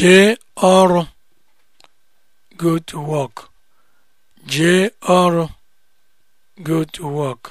jee ọrụ go to work ọrụ go to work